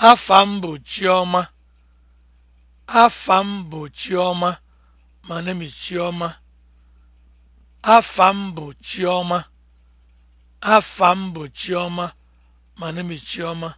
Afa m bụ Chiọma. Afa m bụ Chiọma. My Chioma is Afa m bụ Chiọma. Afa m bụ Chiọma. My Chioma.